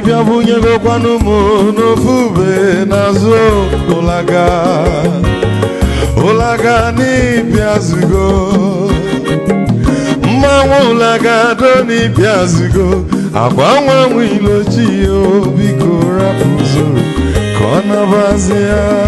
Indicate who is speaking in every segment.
Speaker 1: ị bịa go m mo no n'azụ ụlaga ụlaga n'ịbịazugo mmanwụ ụlaga do n'ịbịazugo agwa nwa nwe ilochi ya biko rapụzoro ka ọ nabazi ya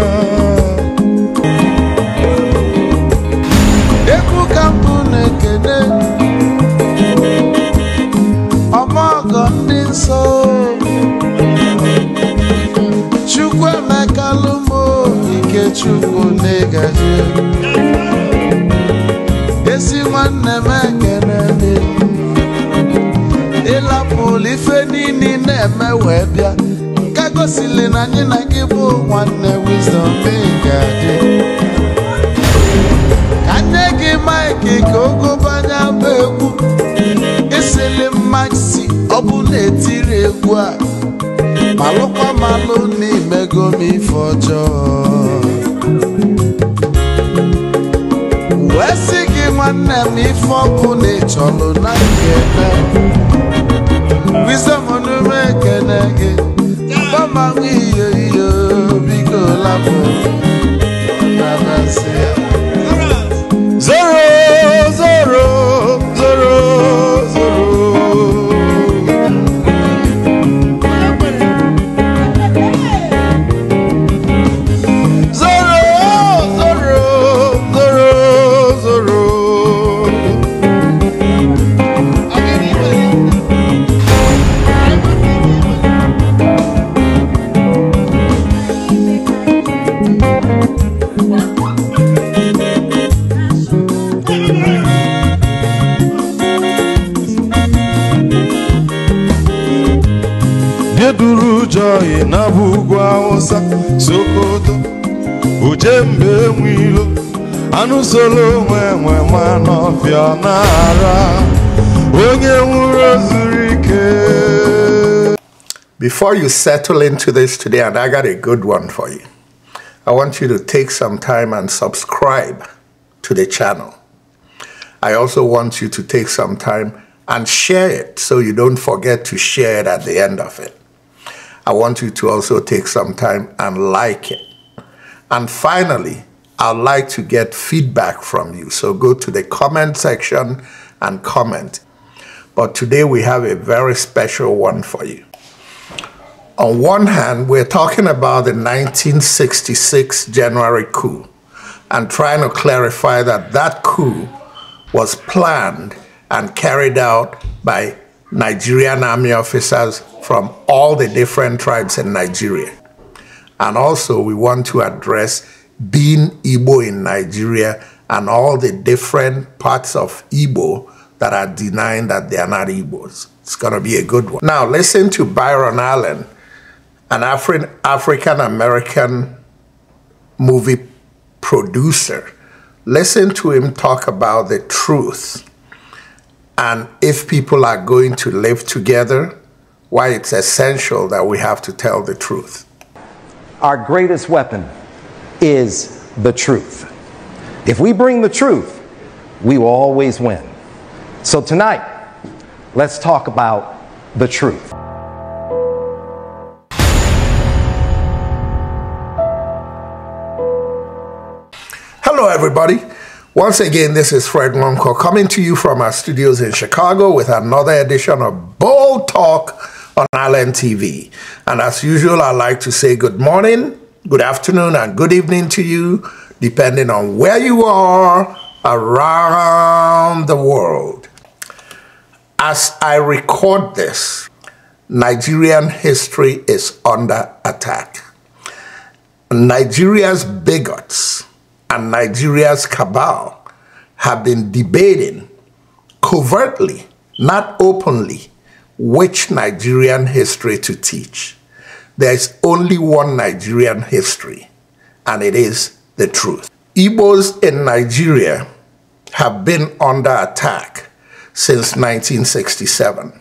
Speaker 1: wee bịa nke gosili na anyị na gị bụ nwanne Wisdom ga-adị ka nne gị maịkị ka ogobanya bụ egwu isili mmasị ọ bụ na-etiri egwu a malụkwa malụ n'imego m ife ọjọọ wee sị gị nwanne m ife ọkụ na ịchọlụ na Wisdom ege Bama ngiyo iyo biko lafo Nabasea
Speaker 2: before you settle into this today, and I got a good one for you, I want you to take some time and subscribe to the channel. I also want you to take some time and share it so you don't forget to share it at the end of it. I want you to also take some time and like it. And finally, I'd like to get feedback from you. So go to the comment section and comment. But today we have a very special one for you on one hand, we're talking about the 1966 January coup and trying to clarify that that coup was planned and carried out by Nigerian army officers from all the different tribes in Nigeria. And also, we want to address being Igbo in Nigeria and all the different parts of Igbo that are denying that they are not Igbos. It's going to be a good one. Now, listen to Byron Allen an Afri African American movie producer. Listen to him talk about the truth and if people are going to live together, why it's
Speaker 3: essential that we have to tell the truth. Our greatest weapon is the truth. If we bring the truth, we will always win. So tonight, let's talk about the truth.
Speaker 2: everybody. Once again, this is Fred Lonko coming to you from our studios in Chicago with another edition of Bold Talk on Island TV. And as usual, I'd like to say good morning, good afternoon, and good evening to you, depending on where you are around the world. As I record this, Nigerian history is under attack. Nigeria's bigots and Nigeria's cabal have been debating covertly, not openly, which Nigerian history to teach. There is only one Nigerian history, and it is the truth. Igbos in Nigeria have been under attack since 1967.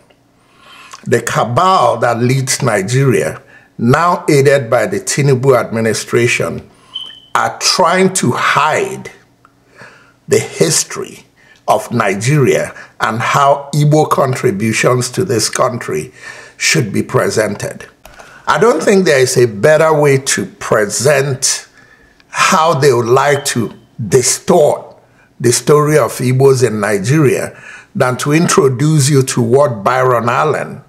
Speaker 2: The cabal that leads Nigeria, now aided by the Tinubu administration, are trying to hide the history of Nigeria and how Igbo contributions to this country should be presented. I don't think there is a better way to present how they would like to distort the story of Igbos in Nigeria than to introduce you to what Byron Allen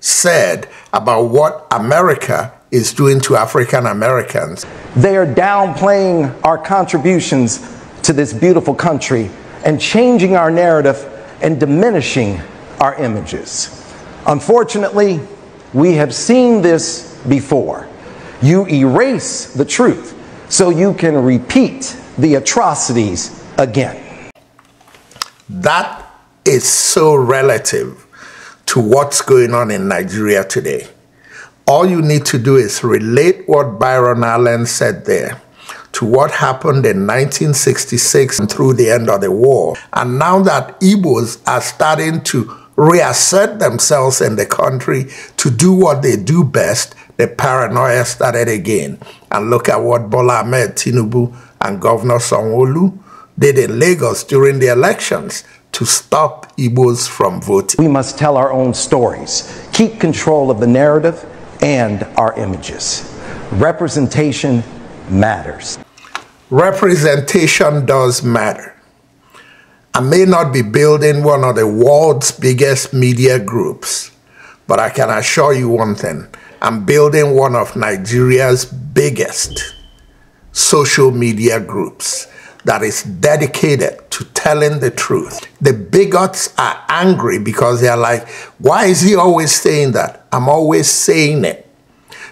Speaker 2: said
Speaker 3: about what America is doing to African Americans. They are downplaying our contributions to this beautiful country and changing our narrative and diminishing our images. Unfortunately, we have seen this before. You erase the truth so you can repeat the atrocities again.
Speaker 2: That is so relative to what's going on in Nigeria today. All you need to do is relate what Byron Allen said there to what happened in 1966 and through the end of the war. And now that Igbos are starting to reassert themselves in the country to do what they do best, the paranoia started again. And look at what Bola Ahmed Tinubu and Governor Songolu did in Lagos during the elections to
Speaker 3: stop Igbos from voting. We must tell our own stories, keep control of the narrative, and our images. Representation matters. Representation does matter. I may not be
Speaker 2: building one of the world's biggest media groups, but I can assure you one thing. I'm building one of Nigeria's biggest social media groups that is dedicated to telling the truth. The bigots are angry because they are like, why is he always saying that? I'm always saying it.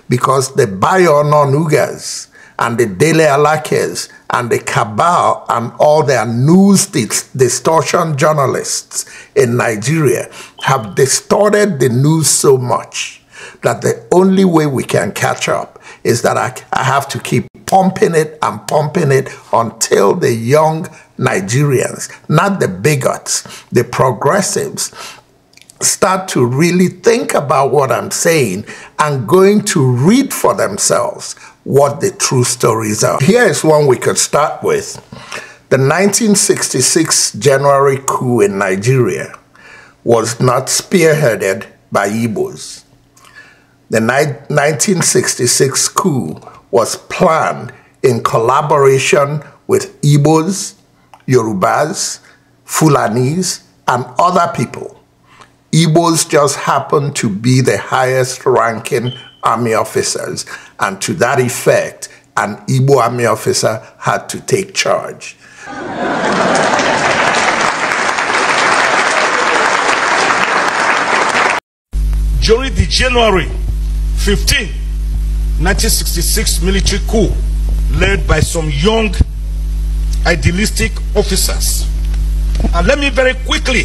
Speaker 2: Because the Bayononugas and the Dele Alakes and the cabal and all their news distortion journalists in Nigeria have distorted the news so much that the only way we can catch up is that I, I have to keep pumping it and pumping it until the young Nigerians, not the bigots, the progressives, start to really think about what I'm saying and going to read for themselves what the true stories are. Here is one we could start with. The 1966 January coup in Nigeria was not spearheaded by Igbos. The 1966 coup was planned in collaboration with Igbos, Yorubas, Fulanis, and other people. Igbos just happened to be the highest ranking army officers, and to that effect, an Igbo army officer had to take charge. During the January
Speaker 4: 15, 1966 military coup led by some young idealistic officers. And let me very quickly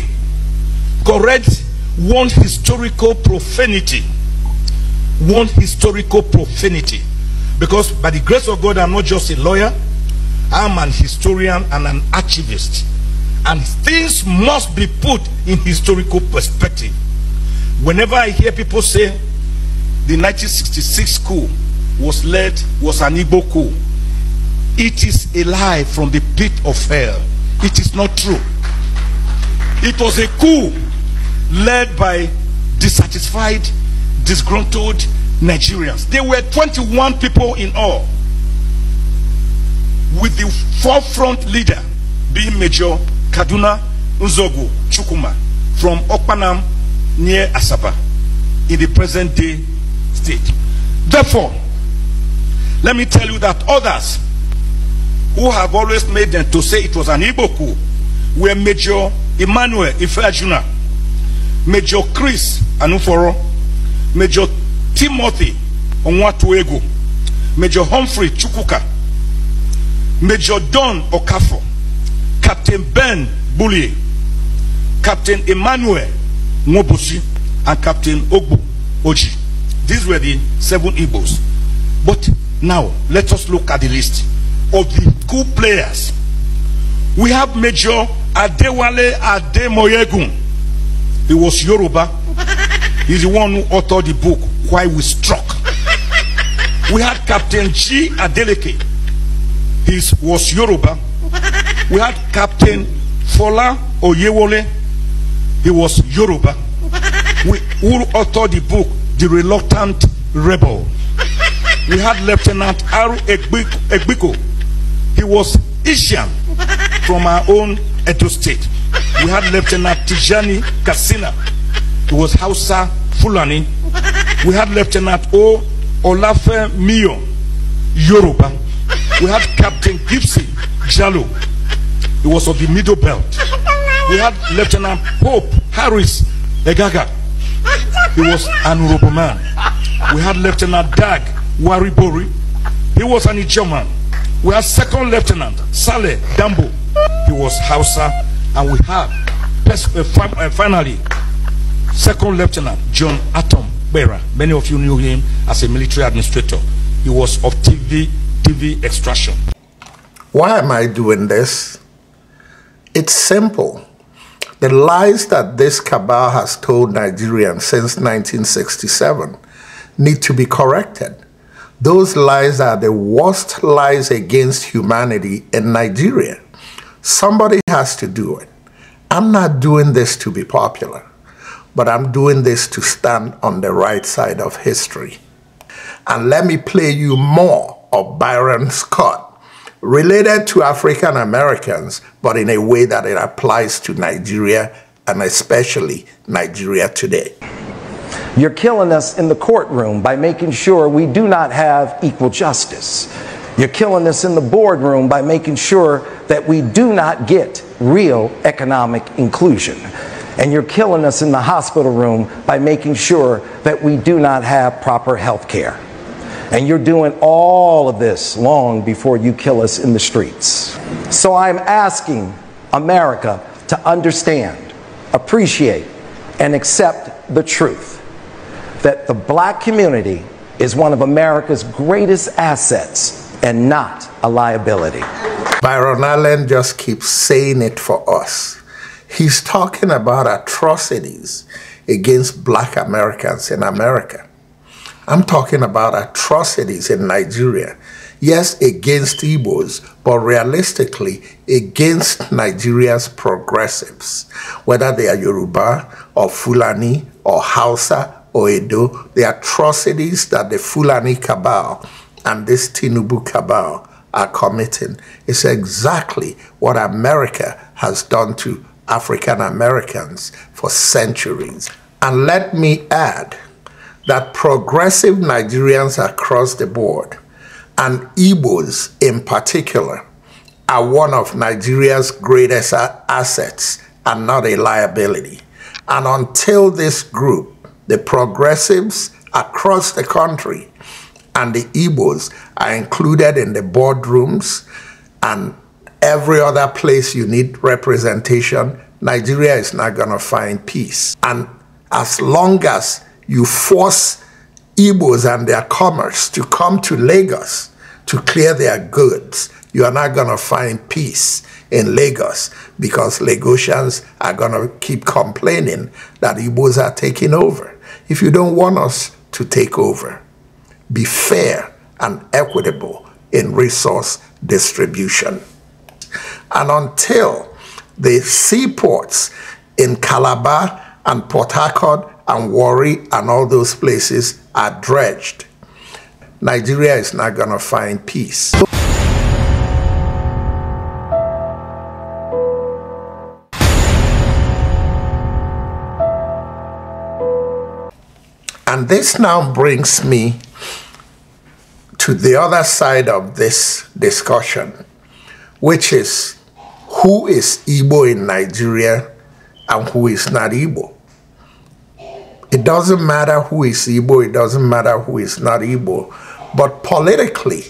Speaker 4: correct one historical profanity. One historical profanity. Because by the grace of God, I'm not just a lawyer. I'm an historian and an archivist. And things must be put in historical perspective. Whenever I hear people say, the 1966 coup was led was an Igbo coup. It is a lie from the pit of hell. It is not true. It was a coup led by dissatisfied, disgruntled Nigerians. There were 21 people in all with the forefront leader being Major Kaduna Nzogu Chukuma from Okpanam near Asaba in the present day Therefore, let me tell you that others who have always made them to say it was an Igbo were Major Emmanuel Ifeajuna, Major Chris Anuforo, Major Timothy Onwatuego, Major Humphrey Chukuka, Major Don Okafor, Captain Ben Bullie, Captain Emmanuel Mobosi, and Captain Ogbu Oji. These were the seven Igbos. But now, let us look at the list of the cool players. We have Major Adewale Ademoyegun. He was Yoruba. He's the one who authored the book, Why We Struck. We had Captain G. Adeleke. He was Yoruba. We had Captain Fola Oyewole. He was Yoruba. We, who authored the book, the reluctant rebel. we had Lieutenant Aru Egbiko. He was Asian from our own Edo state. We had Lieutenant Tijani Kasina. He was Hausa Fulani. We had Lieutenant O. Olafe Mio Yoruba. We had Captain Gibson Jalo. He was of the middle belt. We had Lieutenant Pope Harris Egaga. He was an honorable man. We had Lieutenant Dag Waribori. He was an German. We had second lieutenant Saleh Dambo. He was Hausa. And we had uh, uh, finally second lieutenant John Atom Bera. Many
Speaker 2: of you knew him as a military administrator. He was of TV TV extraction. Why am I doing this? It's simple. The lies that this cabal has told Nigerians since 1967 need to be corrected. Those lies are the worst lies against humanity in Nigeria. Somebody has to do it. I'm not doing this to be popular, but I'm doing this to stand on the right side of history. And let me play you more of Byron Scott related to African Americans, but in a way that it applies to Nigeria and especially Nigeria today.
Speaker 3: You're killing us in the courtroom by making sure we do not have equal justice. You're killing us in the boardroom by making sure that we do not get real economic inclusion. And you're killing us in the hospital room by making sure that we do not have proper health care. And you're doing all of this long before you kill us in the streets. So I'm asking America to understand, appreciate, and accept the truth that the black community is one of America's greatest assets and not a liability. Byron Allen just keeps saying it for us. He's
Speaker 2: talking about atrocities against black Americans in America. I'm talking about atrocities in Nigeria. Yes, against Igbos, but realistically against Nigeria's progressives, whether they are Yoruba or Fulani or Hausa or Edo, the atrocities that the Fulani cabal and this Tinubu cabal are committing is exactly what America has done to African Americans for centuries. And let me add that progressive Nigerians across the board, and Igbos in particular, are one of Nigeria's greatest assets and not a liability. And until this group, the progressives across the country and the Igbos are included in the boardrooms and every other place you need representation, Nigeria is not going to find peace. And as long as you force Igbos and their commerce to come to Lagos to clear their goods, you are not going to find peace in Lagos because Lagosians are going to keep complaining that Igbos are taking over. If you don't want us to take over, be fair and equitable in resource distribution. And until the seaports in Calabar and Port Harcourt and Worry and all those places are dredged, Nigeria is not going to find peace. And this now brings me to the other side of this discussion, which is who is Igbo in Nigeria and who is not Igbo. It doesn't matter who is Igbo, it doesn't matter who is not Igbo. But politically,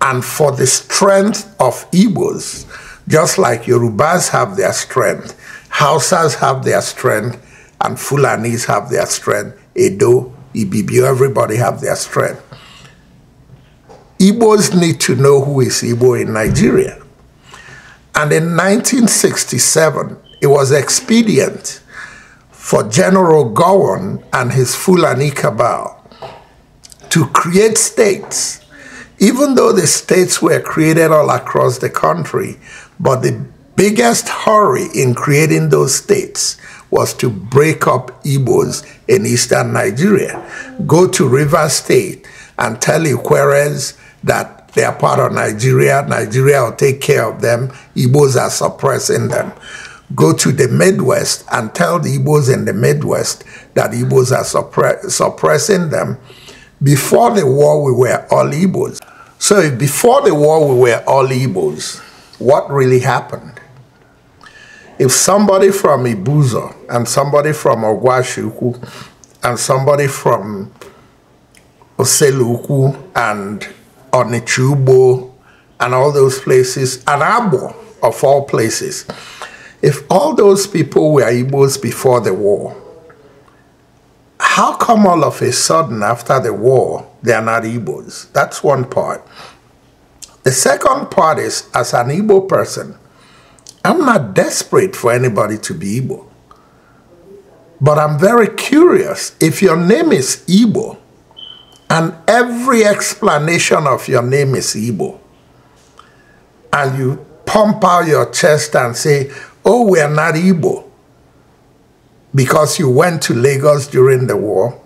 Speaker 2: and for the strength of Igbos, just like Yorubas have their strength, Hausas have their strength, and Fulanis have their strength, Edo, Ibibio, everybody have their strength. Igbos need to know who is Igbo in Nigeria. And in 1967, it was expedient for General Gowon and his Fulani cabal to create states, even though the states were created all across the country, but the biggest hurry in creating those states was to break up Igbos in eastern Nigeria. Go to River State and tell Ikweres that they are part of Nigeria, Nigeria will take care of them, Igbos are suppressing them go to the Midwest and tell the Igbos in the Midwest that Igbos are suppressing them. Before the war, we were all Igbos. So before the war, we were all Igbos. What really happened? If somebody from Ibuzo and somebody from Ogwashuku and somebody from Oseluku and Onichubo and all those places, and Abo of all places, if all those people were Igbos before the war, how come all of a sudden after the war they are not Igbos? That's one part. The second part is as an Igbo person, I'm not desperate for anybody to be Igbo. But I'm very curious if your name is Igbo and every explanation of your name is Igbo and you pump out your chest and say, oh, we are not Igbo because you went to Lagos during the war,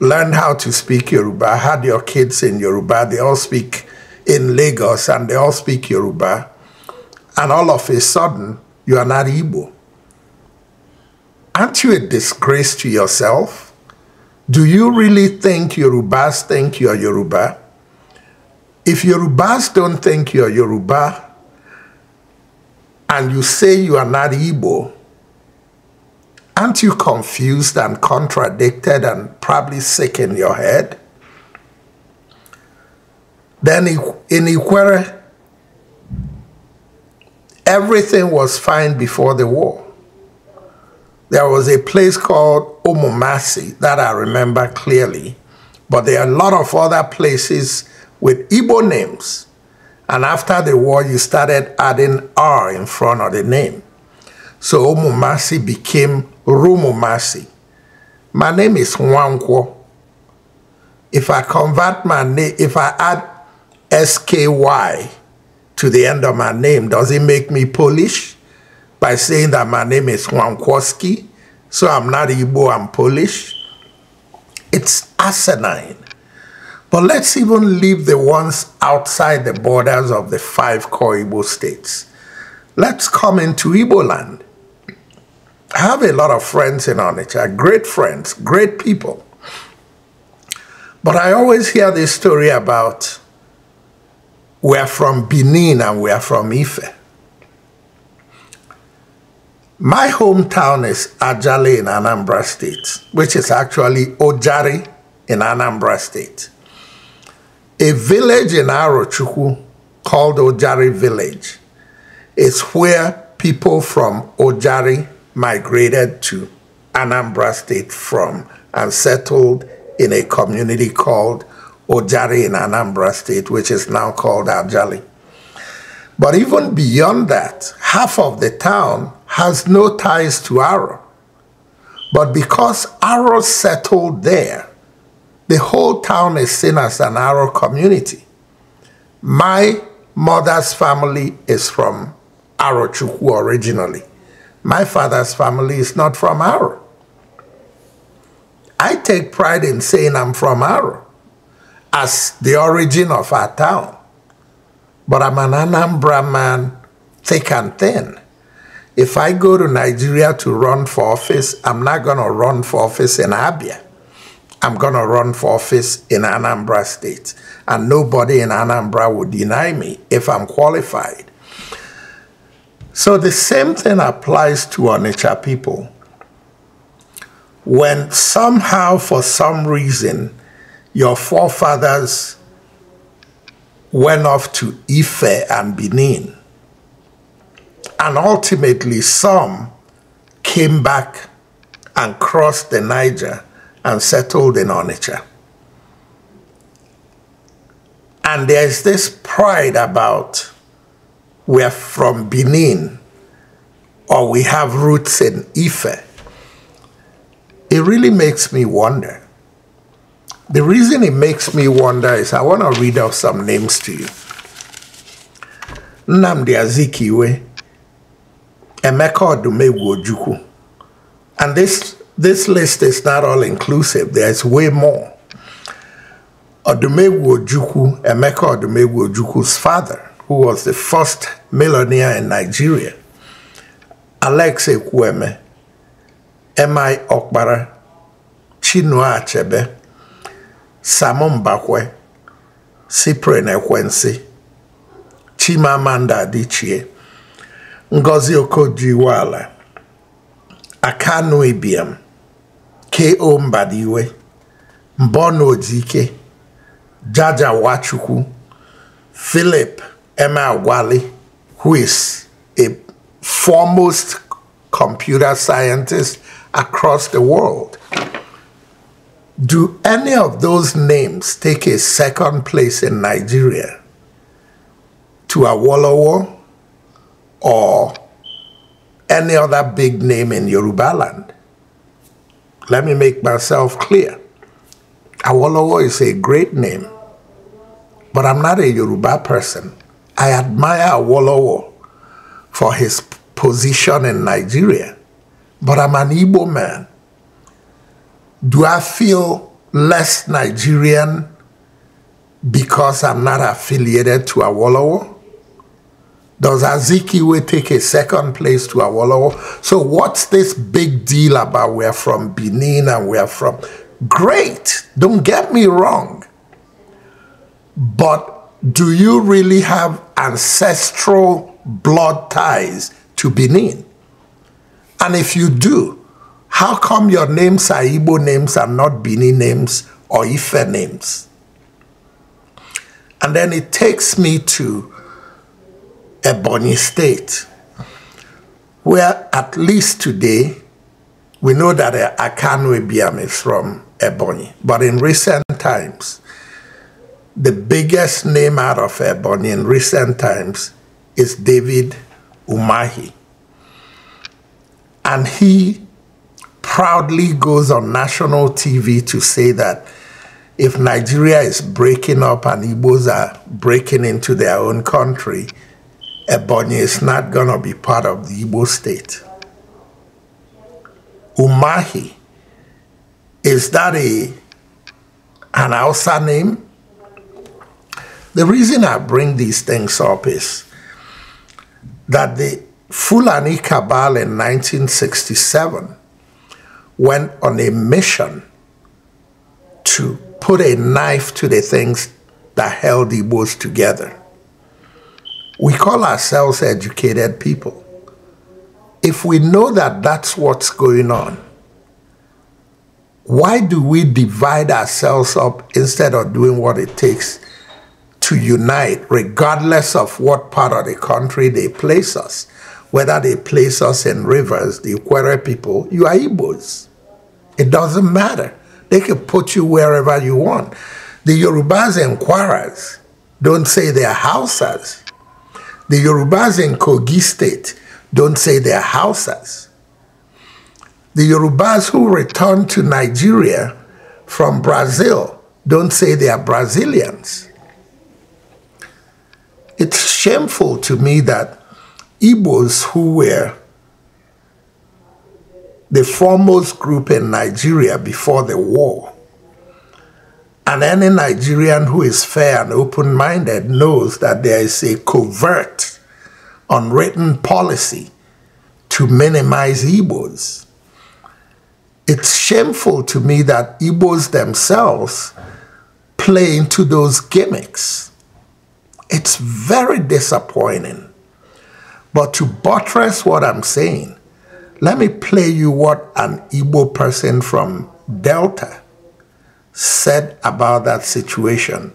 Speaker 2: learned how to speak Yoruba, had your kids in Yoruba, they all speak in Lagos and they all speak Yoruba, and all of a sudden you are not Igbo. Aren't you a disgrace to yourself? Do you really think Yorubas think you're Yoruba? If Yorubas don't think you're Yoruba, and you say you are not Igbo, aren't you confused and contradicted and probably sick in your head? Then in Iquere, everything was fine before the war. There was a place called Omomasi that I remember clearly, but there are a lot of other places with Igbo names and after the war, you started adding R in front of the name. So Omumasi became Rumumasi. My name is Nwankwo. If I convert my name, if I add SKY to the end of my name, does it make me Polish? By saying that my name is Nwankwoski, so I'm not Igbo, I'm Polish. It's asinine. But let's even leave the ones outside the borders of the five core Igbo states. Let's come into Igbo land. I have a lot of friends in Onitsha, great friends, great people. But I always hear this story about we're from Benin and we're from Ife. My hometown is Ajale in Anambra State, which is actually Ojari in Anambra State. A village in Arochukwu called Ojari Village is where people from Ojari migrated to Anambra State from and settled in a community called Ojari in Anambra State, which is now called Ajali. But even beyond that, half of the town has no ties to Aro. But because Aro settled there, the whole town is seen as an Arrow community. My mother's family is from Arochukwu originally. My father's family is not from Arrow. I take pride in saying I'm from Arrow as the origin of our town. But I'm an Anambra man, thick and thin. If I go to Nigeria to run for office, I'm not going to run for office in Abia. I'm going to run for office in Anambra State. And nobody in Anambra will deny me if I'm qualified. So the same thing applies to Onitsha people. When somehow, for some reason, your forefathers went off to Ife and Benin, and ultimately some came back and crossed the Niger and settled in Onitsha. And there's this pride about we're from Benin or we have roots in Ife. It really makes me wonder. The reason it makes me wonder is I want to read out some names to you. Namdi Azikiwe, Emeka Odumegwu Ojukwu. And this this list is not all inclusive. There's way more. Odumegwu Ojukwu, Emeka Odumegwu Oduku's father, who was the first millionaire in Nigeria, Alex Ekweme, M.I. Okpara, Chinua Achebe, Samon Bakwe, Cyprian Ekwensi, Chimamanda Adichie, Ngozi Okojiwala, Akanu Ibiam, ko mbadiwe mbonaodike jaja Wachu,ku philip emeagwali who is a foremost computer scientist across the world do any of those names take a second place in nigeria to awolowo or any other big name in Yorubaland? Let me make myself clear. Awolowo is a great name, but I'm not a Yoruba person. I admire Awolowo for his position in Nigeria, but I'm an Igbo man. Do I feel less Nigerian because I'm not affiliated to Awolowo? Does Azikiwe take a second place to Awolowo? So what's this big deal about we're from Benin and we're from... Great, don't get me wrong. But do you really have ancestral blood ties to Benin? And if you do, how come your names are Igbo names and not Benin names or Ife names? And then it takes me to Ebony State, where at least today we know that uh, Akanwe Biam is from Ebony. But in recent times, the biggest name out of Ebony in recent times is David Umahi. And he proudly goes on national TV to say that if Nigeria is breaking up and Igbos are breaking into their own country, Ebonyi is not going to be part of the Igbo state. Umahi, is that a, an Hausa name? The reason I bring these things up is that the Fulani Cabal in 1967 went on a mission to put a knife to the things that held the Igbos together. We call ourselves educated people. If we know that that's what's going on, why do we divide ourselves up instead of doing what it takes to unite, regardless of what part of the country they place us? Whether they place us in rivers, the Ikwere people, you are Igbos. It doesn't matter. They can put you wherever you want. The Yorubas and Kwaras don't say they're Hausas. The Yorubas in Kogi State don't say they're Hausas. The Yorubas who returned to Nigeria from Brazil don't say they are Brazilians. It's shameful to me that Igbos who were the foremost group in Nigeria before the war and any Nigerian who is fair and open minded knows that there is a covert, unwritten policy to minimize Igbos. It's shameful to me that Igbos themselves play into those gimmicks. It's very disappointing. But to buttress what I'm saying, let me play you what an Igbo person from Delta said about that situation.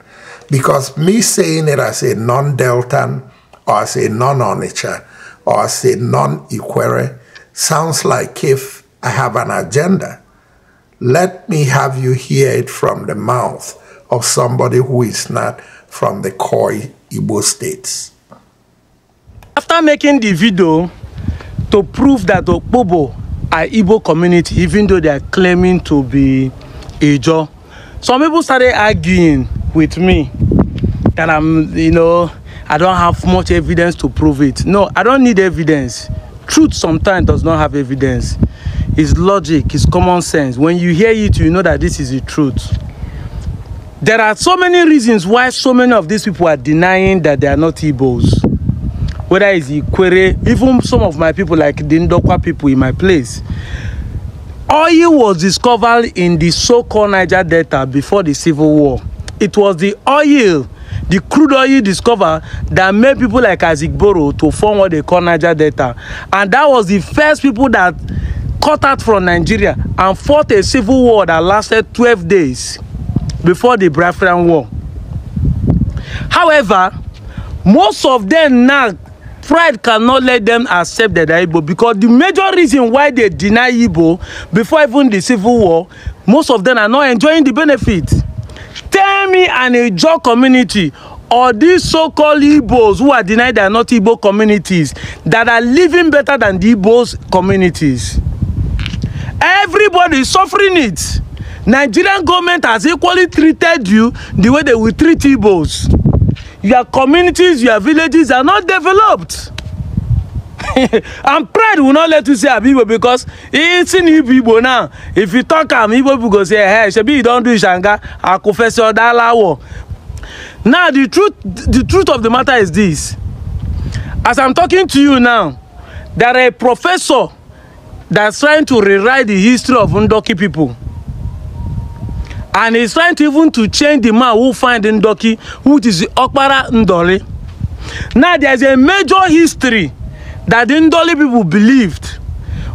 Speaker 2: Because me saying it as a non Deltan or as a non Onitsha or as a non Iquere sounds like if I have an agenda. Let me have you hear it from the mouth of somebody who is not from the Koi Igbo states.
Speaker 5: After making the video to prove that the Bobo are Igbo community, even though they are claiming to be Ijo, some people started arguing with me that i'm you know i don't have much evidence to prove it no i don't need evidence truth sometimes does not have evidence it's logic it's common sense when you hear it you know that this is the truth there are so many reasons why so many of these people are denying that they are not Igbos whether it's Ikwere even some of my people like the Ndokwa people in my place Oil was discovered in the so-called Niger Delta before the Civil War. It was the oil, the crude oil discovered that made people like Isaac Boro to form what they call Niger Delta. And that was the first people that cut out from Nigeria and fought a civil war that lasted 12 days before the Biafran War. However, most of them now pride cannot let them accept that they're Igbo because the major reason why they deny Igbo before even the civil war, most of them are not enjoying the benefit. Tell me an Ijaw community or these so-called Igbos who are denied they are not Igbo communities that are living better than the Igbos communities. Everybody is suffering it. Nigerian government has equally treated you the way they will treat Igbos your communities your villages are not developed and pride will not let you say abi igbo because it's in igbo now if you talk am igbo people go say hey shebi you don do ishanga akufesi odalawo now the truth the truth of the matter is this as i'm talking to you now there are a professor that's trying to rewrite the history of ndoki people and he's trying to even to change the man who find Ndoki, who is the Okpara Ndoli. Now there's a major history that the Ndoli people believed,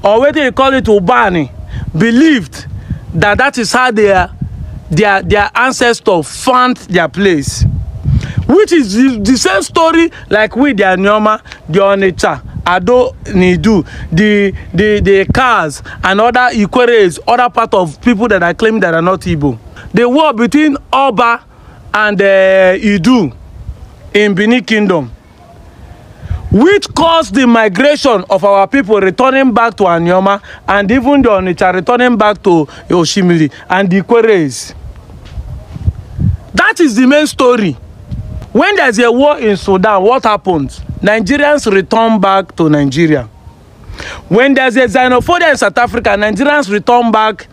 Speaker 5: or whether you call it Ubani, believed that that is how their, their, their ancestors found their place. Which is the, the same story like with the Nyoma, the Onitsha. Ado Nidu, the, the, the Kars and other Ikweres, other part of people that are claiming that are not Igbo. The war between Oba and uh, Idu in Benin Kingdom, which caused the migration of our people returning back to Anyoma and even the Onitsha returning back to Oshimili and the Ikweres. That is the main story. When there is a war in Sudan, what happens? Nigerians return back to Nigeria. When there's a xenophobia in South Africa, Nigerians return back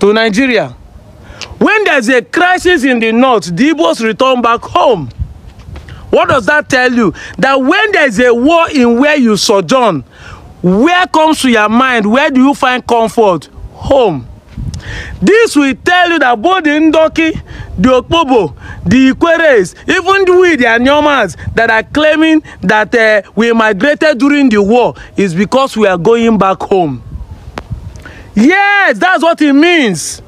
Speaker 5: to Nigeria. When there's a crisis in the north, the Igbos return back home. What does that tell you? That when there's a war in where you sojourn, where comes to your mind? Where do you find comfort? Home. This will tell you that both the Ndoki, the Okpobo, the Ikweres, even the we, the Anyomas that are claiming that uh, we migrated during the war is because we are going back home. Yes, that's what it means.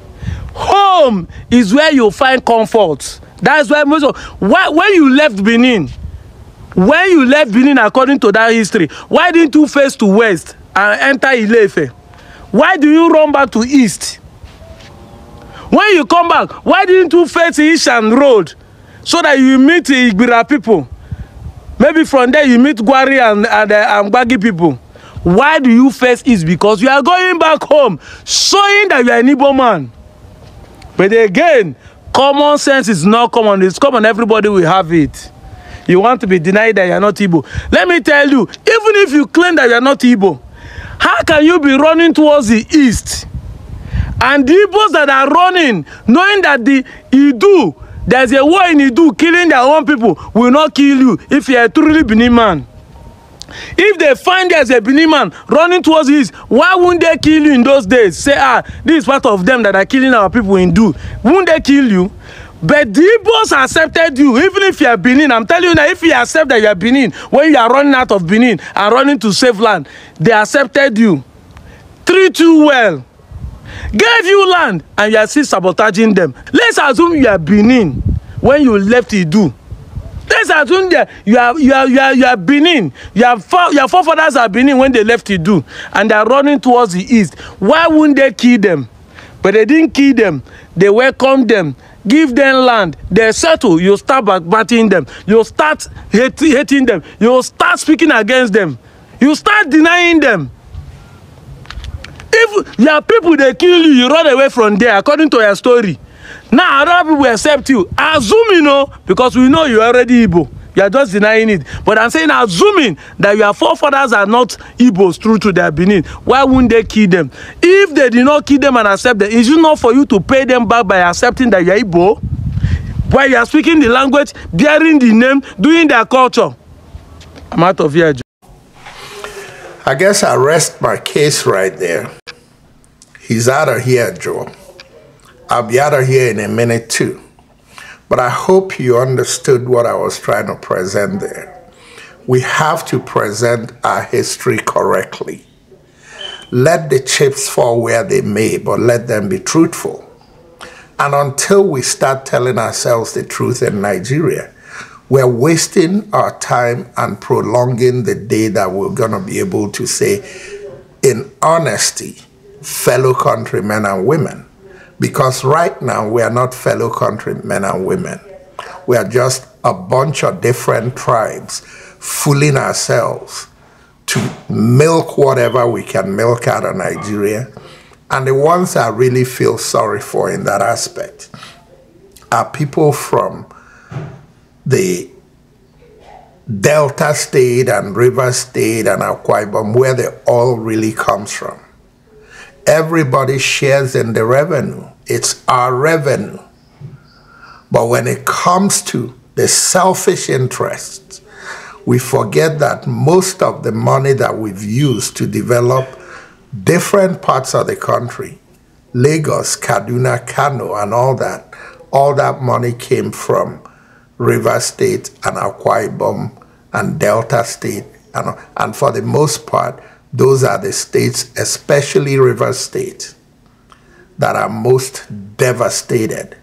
Speaker 5: Home is where you find comfort. That's why most of why, when you left Benin, when you left Benin according to that history, why didn't you face to west and enter Ilefe? Why do you run back to east? when you come back why didn't you face ishan road so that you meet igbira people maybe from there you meet gwari and and, uh, and gbagi people why do you face east because you are going back home showing that you are an igbo man but again common sense is not common it's common everybody will have it you want to be denied that you are not igbo let me tell you even if you claim that you are not igbo how can you be running towards the east And the Igbos that are running, knowing that the Idu, there's a war in Idu, killing their own people will not kill you if you are truly Benin man. If they find there's a Benin man running towards his, why wouldn't they kill you in those days? Say, ah, this is part of them that are killing our people in Idu. Wouldn't they kill you? But the Igbos accepted you, even if you are Benin. I'm telling you now, if you accept that you are Benin, when you are running out of Benin and running to save land, they accepted you. Treat you well gave you land and you are still sabotaging them let's assume you are benin when you left idu let's assume that you are you are you are you are benin your fore your forefathers are benin when they left idu and they are running towards the east why wouldn't they kill them but they didn't kill them they welcomed them give them land they settle you start backbiting them you start hating them you start speaking against them you start denying them if your people dey kill you you run away from there according to your story now other people accept you assuming o because we know you already igbo you are just denying it but i'm saying assuming that your forefathers are not igbos true to their benin why wouldn't they kill them if they did not kill them and accept them is it not for you to pay them back by accepting that you are igbo while you are speaking the language bearing the name doing their culture
Speaker 2: i'm out of here i guess i rest my case right there He's out of here, Joe. I'll be out of here in a minute too. But I hope you understood what I was trying to present there. We have to present our history correctly. Let the chips fall where they may, but let them be truthful. And until we start telling ourselves the truth in Nigeria, we're wasting our time and prolonging the day that we're going to be able to say, in honesty, fellow countrymen and women. Because right now we are not fellow countrymen and women. We are just a bunch of different tribes fooling ourselves to milk whatever we can milk out of Nigeria. And the ones I really feel sorry for in that aspect are people from the Delta State and River State and Akwa Ibom, where the oil really comes from. Everybody shares in the revenue. It's our revenue. But when it comes to the selfish interests, we forget that most of the money that we've used to develop different parts of the country, Lagos, Kaduna, Kano, and all that, all that money came from Rivers State and Akwa Ibom and Delta State. And, and for the most part, those are the states, especially river states, that are most devastated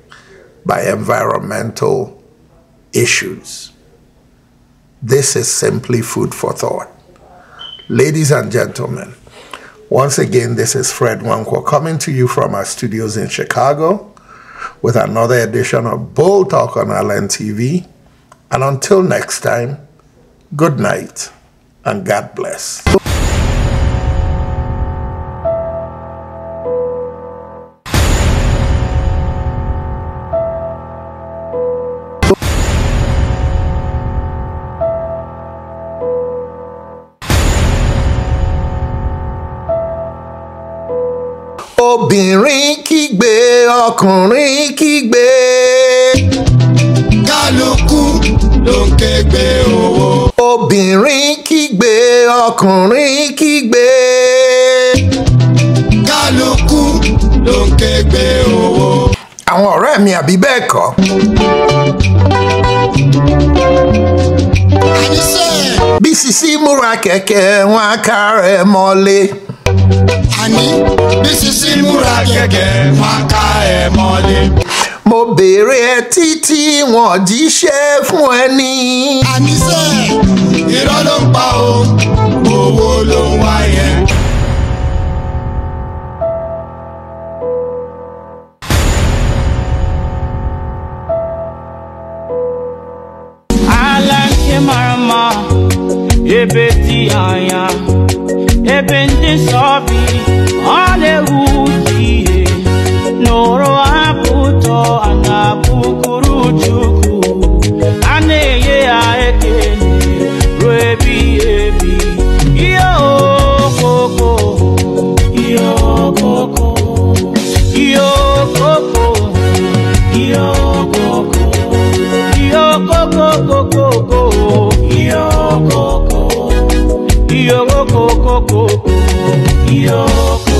Speaker 2: by environmental issues. This is simply food for thought. Ladies and gentlemen, once again, this is Fred Wanko coming to you from our studios in Chicago with another edition of Bull Talk on Island TV. And until next time, good night and God bless.
Speaker 1: lọkùnrin kígbe. kálukú ló ń kégbe owó.
Speaker 2: obìnrin kígbe ọkùnrin kígbe. kálukú ló ń kégbe owó. àwọn ọ̀rẹ́ mi àbí bẹ́ẹ̀ kọ́. bísí sí múra kẹ̀kẹ́ wọn á kárẹ̀ mọ́lé mi bí sisi múra gẹ́gẹ́ máa ká ẹ mọ́lé. mo béèrè ẹ títí wọn jíṣẹ́ fún ẹ ní. àníṣe irọ́ ló
Speaker 1: ń pa o owó ló ń wá yẹn. Marama, Ebeti Aya. ebe ndị nsọbi ọla-ewuti abuto anabukuru ha Chukwu Yo.